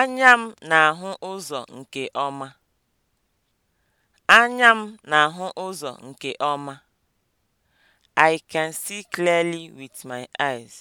Anya m na-ahụ ụzọ nke ọma. Anya m na-ahụ ụzọ nke ọma. I can see clearly with my eyes.